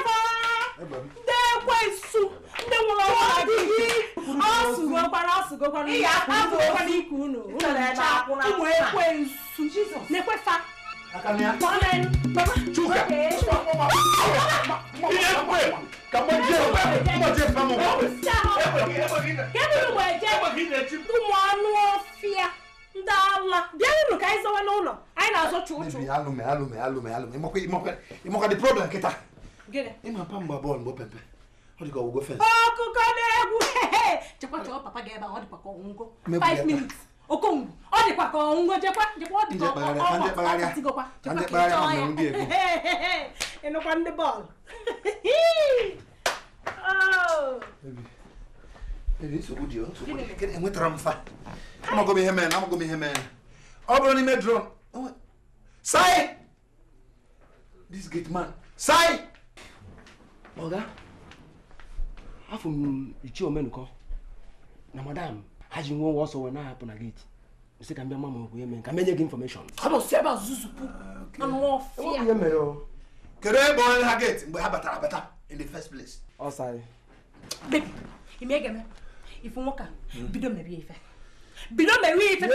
ndị egwe esu ndị nwụrụ ọkwa gị ọsụgokwara ọsụgokwara ihe akpazụ ọkwana ikwu unu unu na-eche akwụna ụmụ ekwe esu na-ekwefa Chuka! Chuka! Ihe ekwe! ka mgbe je fa mu ụmụ anụ ọfịa ndị ala bịarụnụ ka anyị zawa n'ụlọ anyị na-azọcha ụchụ ịmakwadị problem kịta ịmapa mgba bọọlụ pepe na papa 5 minutes okongwu ọ dịkwa ka ọnwụnwe jekwa ọ dịkwa ya ịnụkwa ndị bọọlụ ọ bụrụ n'ime dron sai this gate man sai ọga afọ m omenụkọ na madam haji nwe ọsọ wee na-ahapụ na gate sị ka m bịa mama okwu ya mee ka m enye gị infọmeshọn ihe mere o kedu ebe onye ha gate mgbe ha better, better in the first place ọ sarị ifu nwoke bido merie ife bido merie ife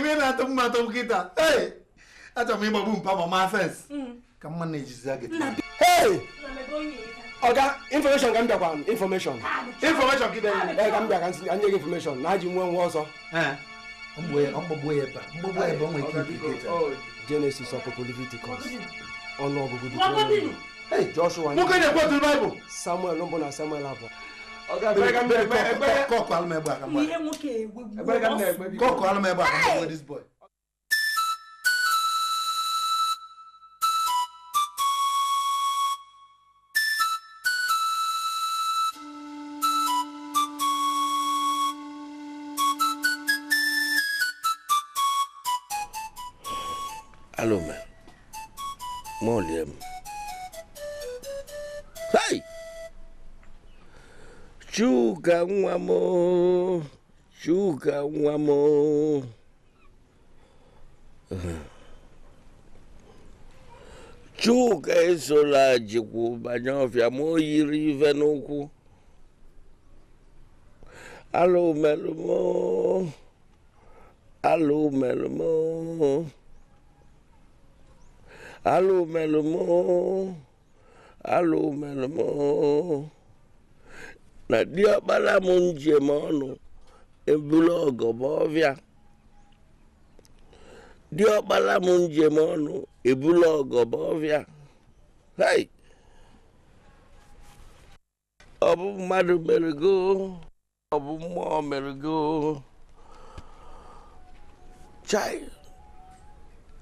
ime na-atụ mma atụ nkịta achọrọ m ịgbagbu mpa ma ma fes ka mma na-ejizi gị ọga infọmeshọn ka m bịakwa infọmeshọn infọmeshọn gị information, eh, ka m bịa ka nye gị information, na ajị nwe nwa ọzọ Genesis ọpụpụ Leviticus ọnụ ọgụgụ dị Joshua nwoke Baịbụl Samuel mbụ na Samuel abụọ kọkụ alụmegbe aka mgbe alo me mɔlie mu hei tsuga ŋu amewo tsuga ŋu amewo tsuga eso le dziku banyɔvia mo yiri ve alo me lo mo alo me Allo Melomo, allo Melomo. Na diọkpara m njem ọnụ ebulu ọgọ ma ọbịa. Diọkpara m njem ọnụ ebulu ọgọ ma ọbịa. Hai! Ọ bụ mmadụ mere go, ọ bụ mmụọ mere go. Chai!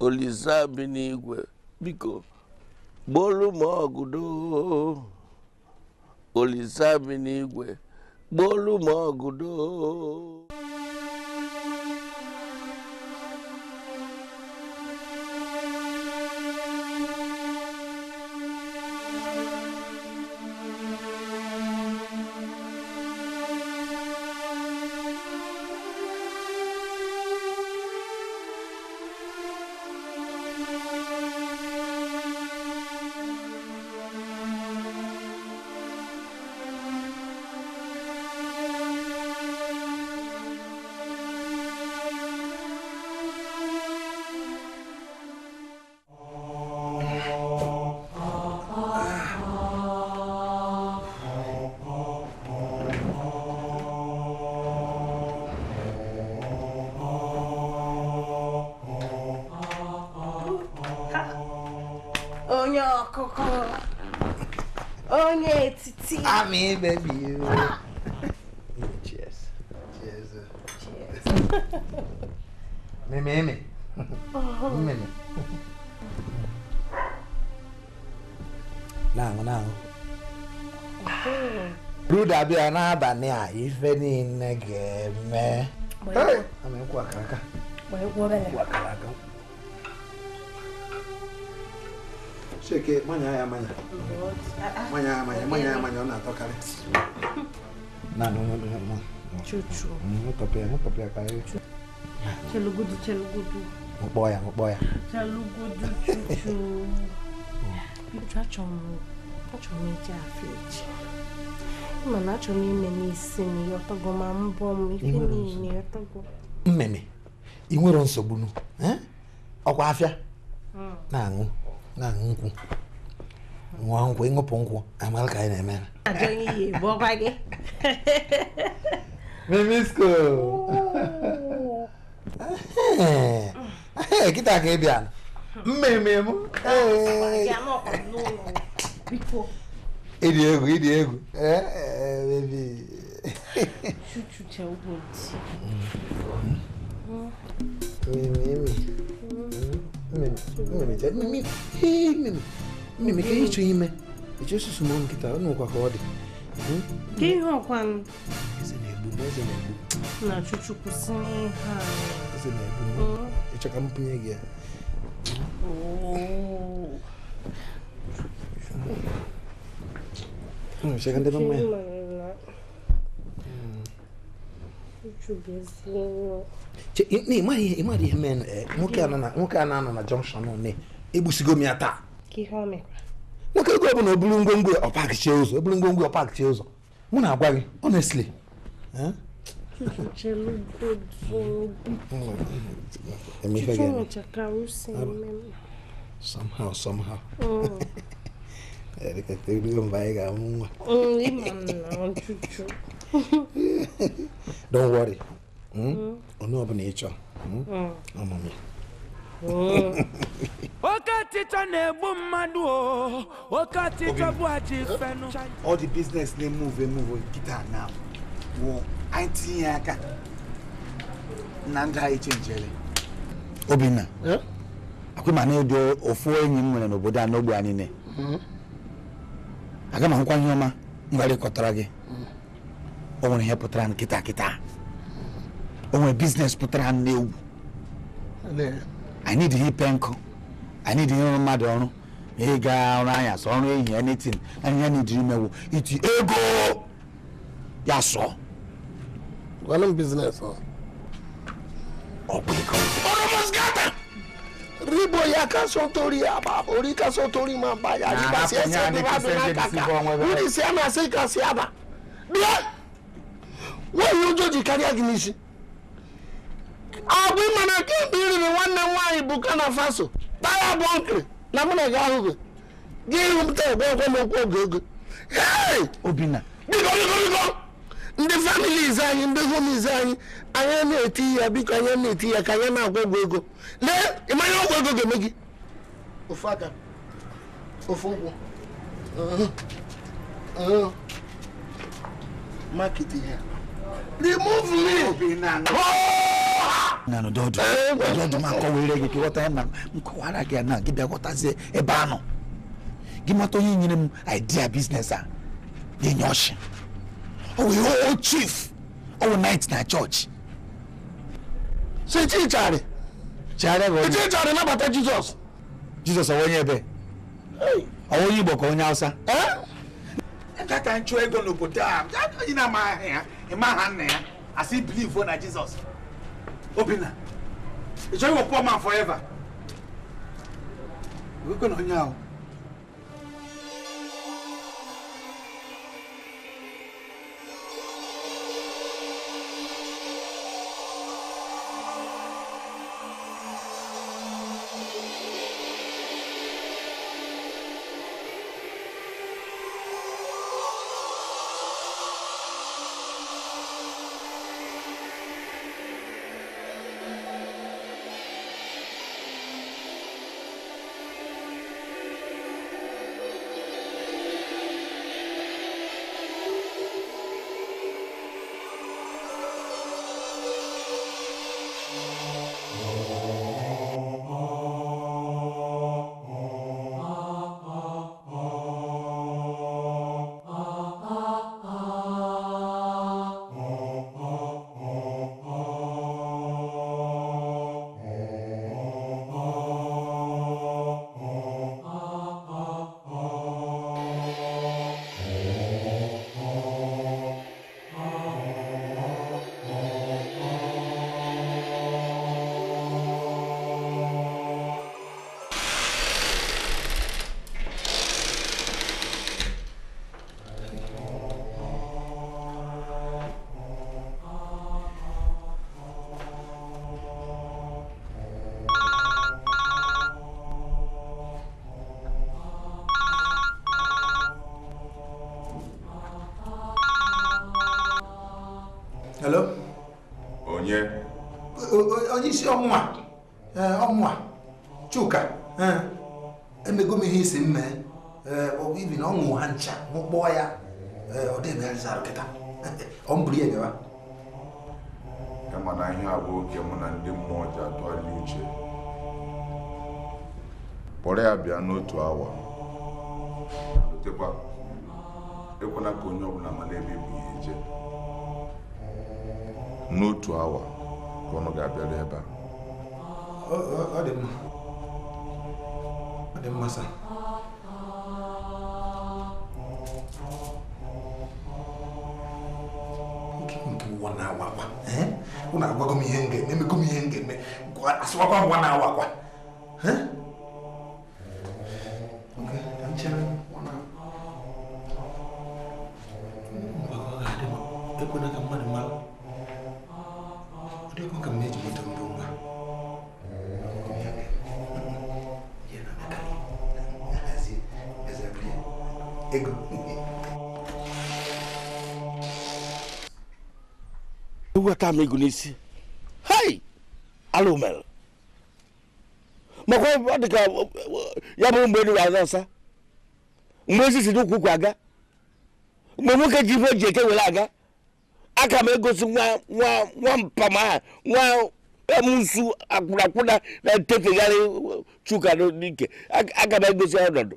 Olisa bi n'igwe. biko gbolu m ọgụdo n'igwe gbolu m ọgụdo I ah, mean, baby, you. Cheers. Cheers. Cheers. Mimi, Mimi. Mimi. Nangu, nangu. Bruda bịa n'abalị a eh? Hey! I'm ga-eme. Amịkwa kaka. Amịkwa kaka. chike manya ya manya manya ya manya manya ya manya ọ na-atọkarị mm, chelugudu chelugudu mkpọ ya mkpọ ya chelugudu chuchu achọrọ m ije afọ ị nọ na m ime n'isi m yọtọgo ma mbọ m ife niile mmeme ị nwere nsogbu ọkwa afịa na-aṅụ nkwụ nwa nkwụ ịṅụpụ nkwụ amara ka anyị na-eme mimisko kịta ka ị bịa mmemme m ịdị egwu ịdị egwu mmemme Exactamente. Mimik, mimik, ịchụ ime. Echesu sumo nkịta, ọ nụkwa ka ọ dị. Dị ihe ọkwa m. Eze na-egbu m, eze na-egbu. Na Chuchukwu ihe nwoke e a na-anọ na jọnshọn ne m ya taa nwoke ego ọbụla oburu ngwongwo ọpakchie ụzọ oburu ngwongwo ọpakchie ụzọ mụ na-agwa gị honestly ga-amụ ah, oh. nwa don't worry onye ọbụla ị chọọ ọmụmụ oke ọchịchọ na-egbu mmadụ o oke ọchịchọ bụ achị fenụ all the business na-emove emove kịta na wụ anyị tinye eh? aka na ndị anyị chenjere obinna akwụma na ịdị ofu enyi m nwere n'obodo a n'ogbe anyị ne hmm? aga m ahụkwa ọma m gharịkọtara gị ɔwɔ yɛ putara no kitakita ɔwɔ business putara no n'ewu i need hi pɛnkɔ i need hi mmadụ ọrụ ma ị gaa ọrụ anya sọ ọrụ ehi anything anya need hi mewu iti ego ya sọ. gwanụ business ọ. ọ bụ ego. ọrụ ribo ya ka so tori aba ori ka so tori ma ba ya riba si ẹsẹ bi ba dun n'aka ka wuli si ama si ka si aba. bia. nwaanyị ụjọ ji karịa gị n'isi abụ mana kemgbe ị nwanne m nwaanyị bụ kana faso taya bụ na mụ na gị ahụghị gị ihu m taa egwe ekwe m okwu oge obina biko biko biko ndị familiz anyị ndị homiz anyị anya na-eti ya biko anya na-eti ya ka anyị na-agwa ọgwụ ego lee ịmanya ọgwụ ego ga-eme gị ofu aka ofu ụkwụ maketi ya remove me. nanu dọọdu dọọdu ma kọ wele keke wọta ẹ na n kọ wàhálà kẹ na kí bẹ wọta ṣe ẹ bá nọ gimatọ yìí nyere mu idea business a yẹ nyọ ọsẹ ọwọ yẹ ọwọ chief ọwọ oh, night na church ṣe tí ì jaare jaare bọ tí ì jaare nabata jesus jesus ọwọ yẹn bẹ ọwọ yìí bọ kọ onye hausa. ẹ eh? ká ká n tún ẹgbẹ́ n'obodo a ah. yìí nà máa hẹ̀ ẹ́. Ah mma ha nna ya asị bilivu na jizọs obinna ị chọghị a poor man forever gwekwe na onye ahụ isi ọmụnwa eh, ọmụnwa Chuka eh, emego m ihe isi mme eh, ibi na ọ ṅụ ha ncha kpọọ ya ọ dịbegharịzara kịta ọ mbụrụ ya bịawa kama na ihe a bụ oge mụ na ndị mmụọ ji atụgharị uche kpọrọ ya bịa n'otu awa lotekwa ka onye ọbụla mara ebe bụ ihe je n'otu awa ka ọnụ ga-abịaru ebe a ọ dị mma ọ dị mma sa ụwa na-awakwa ụna agwago m ihe m ga-eme emego m ihe m ga-eme asịwakwa ngwa na-awakwa eweta m ego n'isi hei alụ mere makwa ọ dị ka ya bụ mgbe eluga aza nsa mgbe ezi si n'ụkwụ ụkwụ aga mgbe nwoke ji ife eji eke were aga aka m egosi nwa nwa nwa mpam nwa emusu akwụnakwụna na-etefegharị chuka n'ike aka m egosi ọnọdụ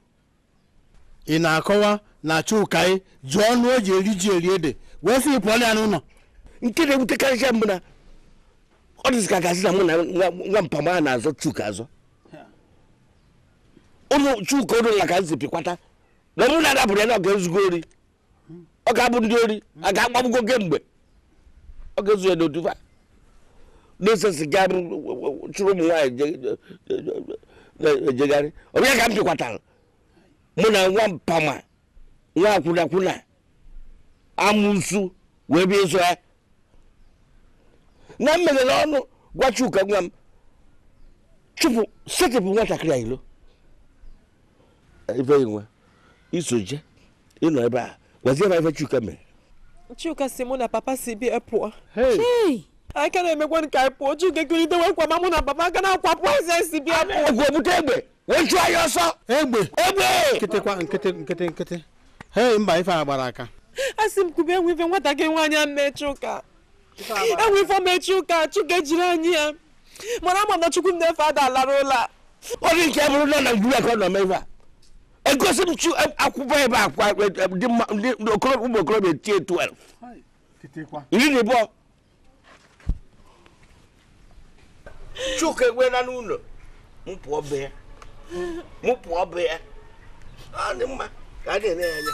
ị na-akọwa na chuka e, jụọ ọnụ o ji eri ji eri ede wee sị pụọ ya n'ụlọ nke na-ewutekarịcha mbụ na ọ dịzị ka gazi na mụ na nwa mpama a na-azọ chuka azọ ụlọ chuka ụlọ na ka nzipikwata na mụ na adabụrụ ya na ọ ga-ezugo ori ọ ga-abụ ndị ori a ga-agbagbugo mgbe ọ ga-ezu ya n'otufa n'osesi ga chụrụ ụmụ nwaanyị ejegharị ọbịa ka m pịkwatara mụ na nwa mpama nwa akwụnakwụna amụsu wee bịa ịzụ ya na m meghere ọnụ gwa Chuka nwa m chụpụ setịpụ nwatakịrị a ilo ife nwe isoje ịnọ ebe a gwazie ebe Chuka mere Chuka si mụ na papa si bịa e pụọ aka na-emekwa nke anyị pụọ Chuka ekirite wee kwa mụ na papa aka na akwapụ pụọ eze si bịa pụọ ọgwụ egbe wee chụọ ya ọsọ egbe egbe nkịtịkwa nkịtị nkịtị nkịtị hei mba ife a gbara aka a sị m kube enwe ife nwatakịrị nwaanyị a mme Chuka enwe ifeọma echi ụka chukwu ejiri anyị ya mana ama m na chukwu nnefe ada alara ụlọ a ọrụ nke bụrụ na naijiria ka ọ nọ ebe a egosi m chu akwụkwọ ebe akwa ụmụ okorobịa tie 12 iri na ịbụọ chuka egwela n'ụlọ m pụọ be ya m pụọ be ya ọ dị mma ka a na-ele ya anya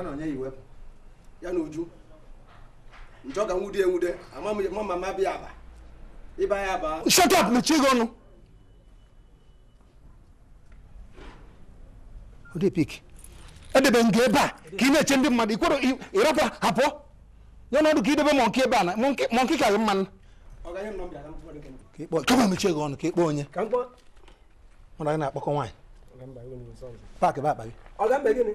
ha na onye iwe ya na uju njọ ka nwude enwude ama ma bịa aba ịba ya aba shut up mechie gị ọnụ odepik edebe nga ebe a ka ị na-eche ndị mmadụ ikwere ịrapụ hapụ ya n'ọdụ ka idebe mọnki ebe a na mọnki ka gị mmanụ kama mechie gị ọnụ ka ịkpọ onye mmadụ anyị na-akpọkọ nwaanyị paakị bụ akpa gị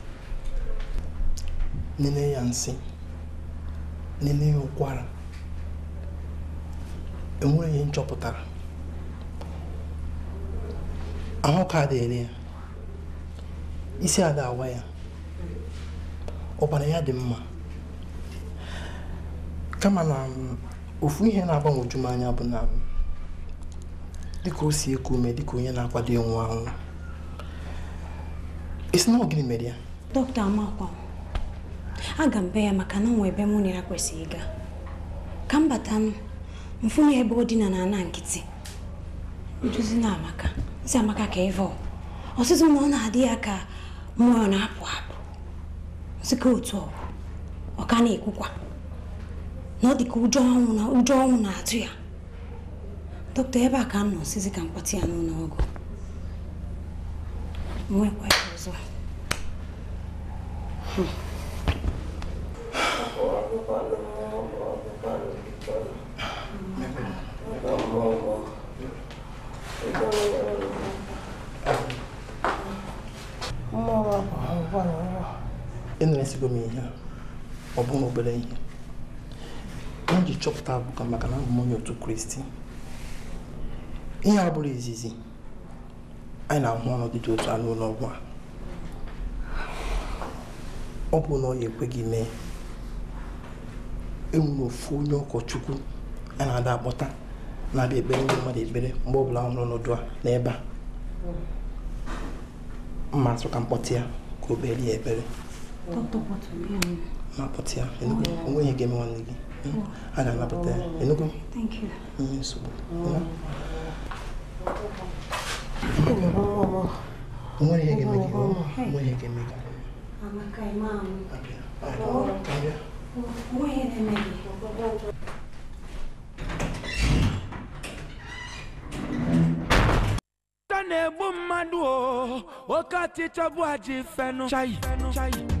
nene ya nsị nene ya ụkwara enwere ihe nchọpụtara ahụ ka dịrị ya isi ada awa ya ọbara ya dị mma kama na mm, ofu ihe na-agbanwoju m anya bụ na mm, ka o si eku dị ka onye na-akwado ịnwụ anwụ isi na ọ gịnị mere ya dọkịta amakwa aga m be ya maka na onwe ebe mụ na ya kwesịrị ịga ka m bata mfụnụ ebe ọ dina na ana nkịtị nduzi na amaka nsi amaka ka ịvọ ọsịsọ na ọ na-adị ya ka mmụọ na-apụ apụ sika otu ọ ọka na-ekwukwa na ọ dị ka ụjọ ọnwụ na ụjọ ọnwụ na-atụ ya dọkịta ebe a ka m nọ ọsịsị ka mkpọtụ ya n'ụlọ ọgwụ nwekwa ya ọzọ Hmm. emesigo m ihe ọ bụghị obere ihe m ji chọpụta abụka ka maka na abụ m onye otu kristi ihe a bụrụ izizi anyị na-ahụ ọnọdụ dị otu a n'ụlọ a ọ bụ na ọ ya ekweghị mee enwere ofu onye ụkọchukwu a na-ada akpọta na-abịa ekpere ndị mmadụ ekpere mgbe ọ bụla ọ nọ n'ọdụ a n'ebe a mma atụ ka ya ka o ya ekpere Doctor, Thank you. Mm, so, you know. Ọmọ yẹn gẹ̀mẹ̀ gẹ̀mẹ̀ ọmọ yẹn gẹ̀mẹ̀ gẹ̀mẹ̀.